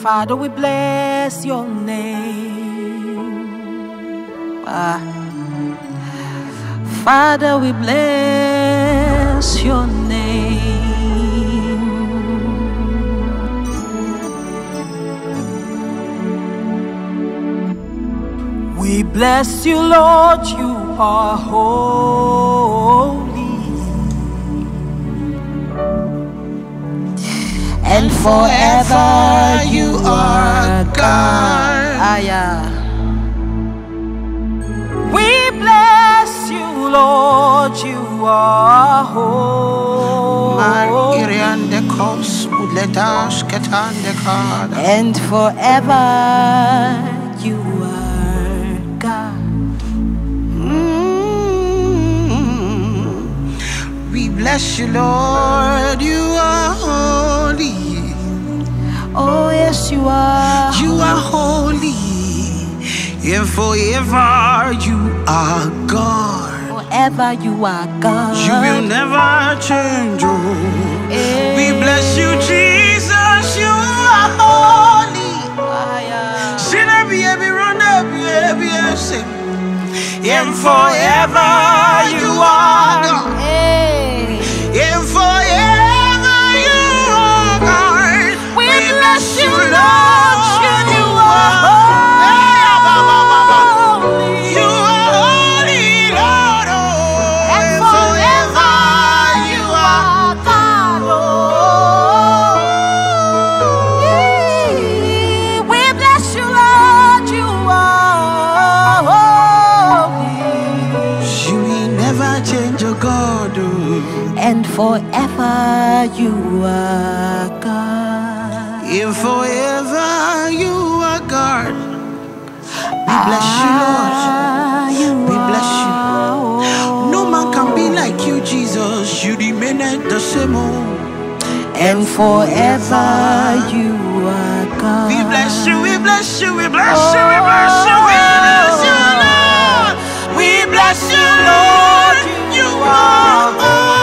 Father, we bless your name. Ah. Father, we bless your name. Bless you, Lord, you are holy. And forever you are God. Aya. Ah, we bless you, Lord, you are holy. And forever you are. bless you, Lord. You are holy. Oh, yes, you are. You are holy. And forever you are God. Forever you are God. You will never change. Oh. Hey. We eh. bless you, Jesus. You are holy. And forever you are God. forever you are God. If forever you are God. We bless you, ah, Lord. we bless you. No man can be like you, Jesus. You remain the same. Old. Oh. And forever you are God. We bless you, we bless you, we bless you, we bless you, we bless you, Lord. We bless you, Lord. You are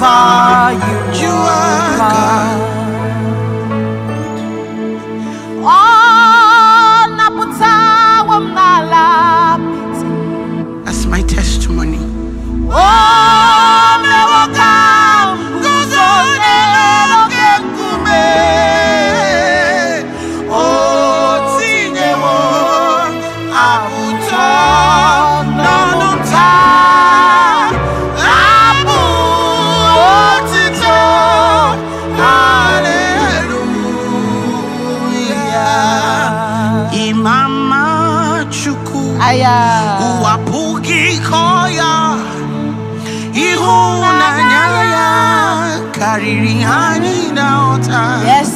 wherever you, you are.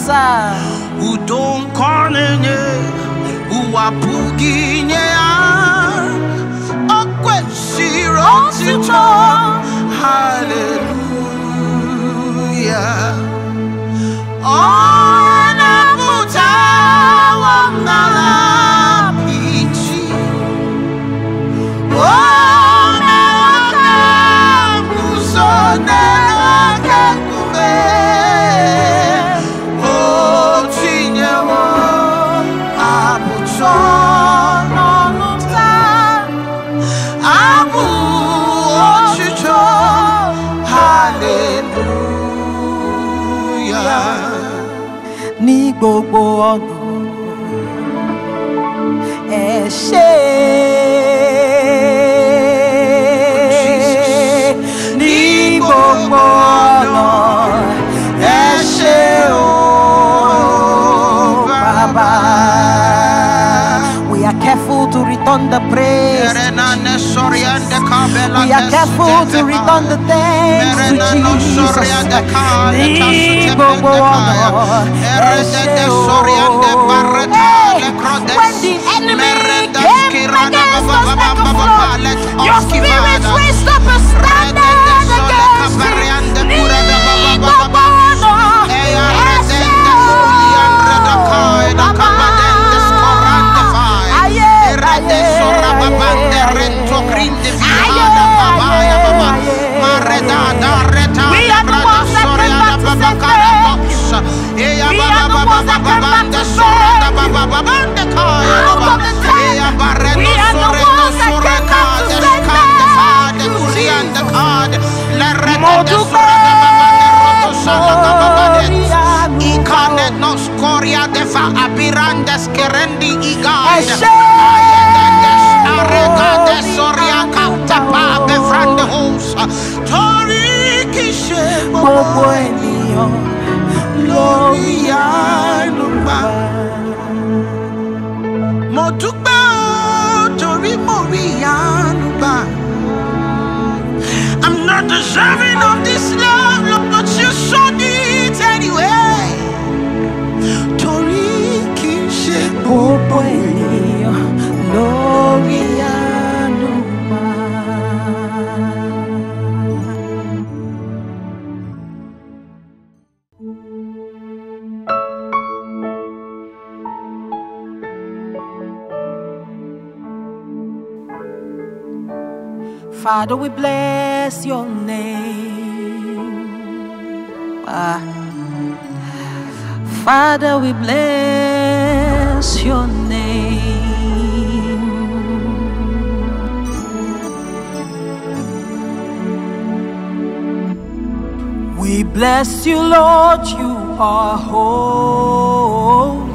sasa udonkonenye uwapuginyeya okwesirotito haleluya onabutawangala and ṣe ní gbogbo ọ̀nà We are careful to return the praise. We are careful to return the thanks to Jesus. Ní gbogbo ọ̀nà ẹ ṣe When the Your spirit's wisdom. deserving of this love, Lord, but you showed it anyway. Torí kì í ṣe gbogbo ènìyàn thank you Father, we bless your name. Ah. Father, we bless your name. We bless you, Lord, you are whole.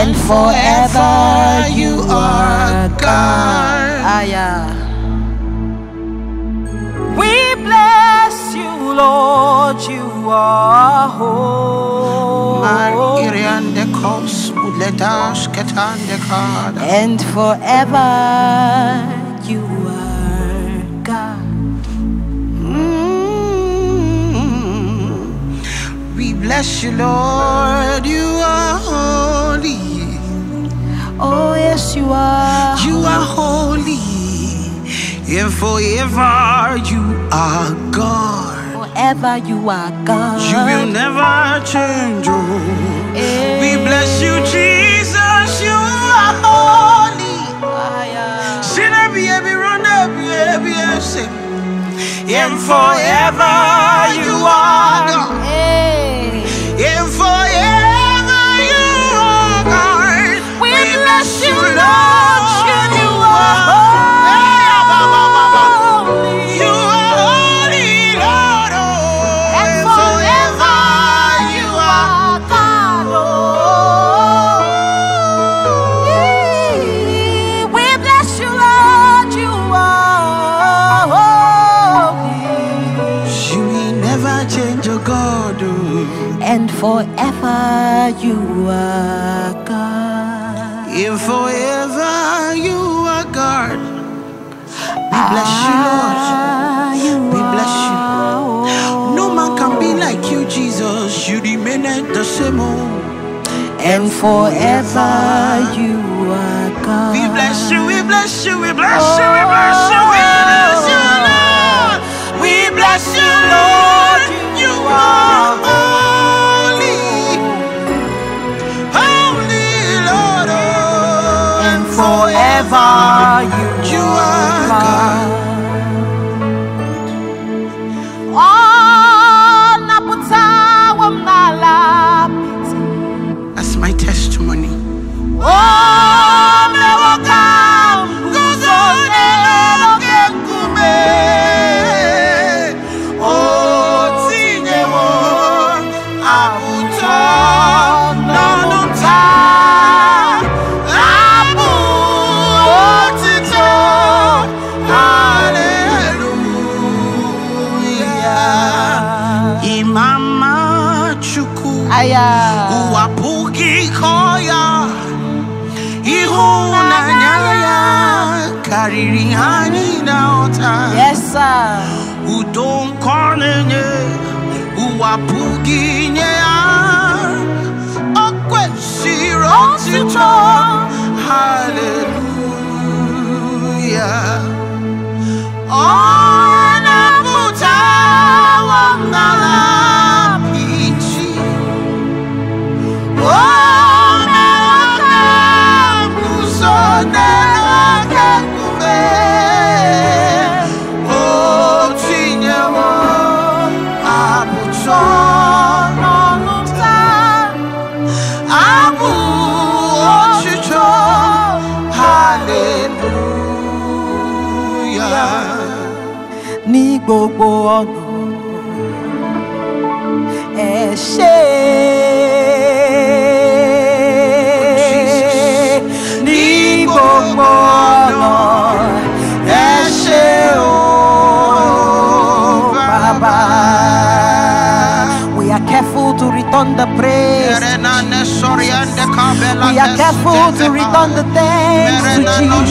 and forever you are God. Ah, yeah. We bless you, Lord, you are holy. And forever you are. bless you, Lord. You are holy. Oh, yes, you are. You are holy. And forever you are God. Forever you are God. You will never change. Oh. Hey. We eh. bless you, Jesus. You are holy. And forever you are God. Hey. Eh. forever you are God. If forever you are God, we bless you, Lord. Ah, we bless you. No man can be like you, Jesus. You remain the same. Old. And forever you are God. We bless you, we bless you, we bless you, we oh, bless you, we bless you, Lord. We bless you, Lord. You are. are you? You are. Baba. Udon kwanenye, uwapuginye Okwe shiro tito, hallelujah. Oh.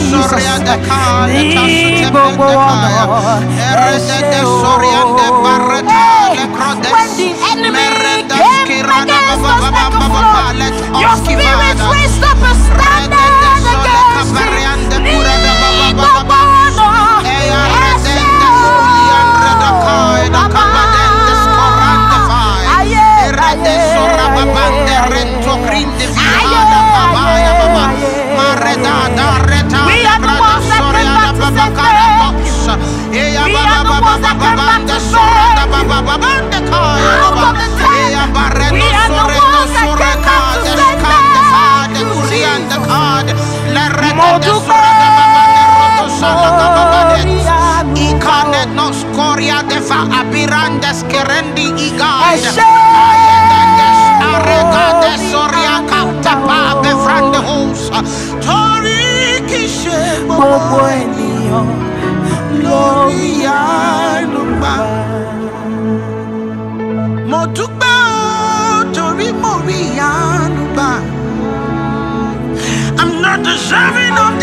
Soriande Kale When the enemy came against us like a flood Your spirit raised up gbogbo ènìyàn lórí àánú mo dúpẹ́ o torí mo rí àánú gbà. I'm not deserving of.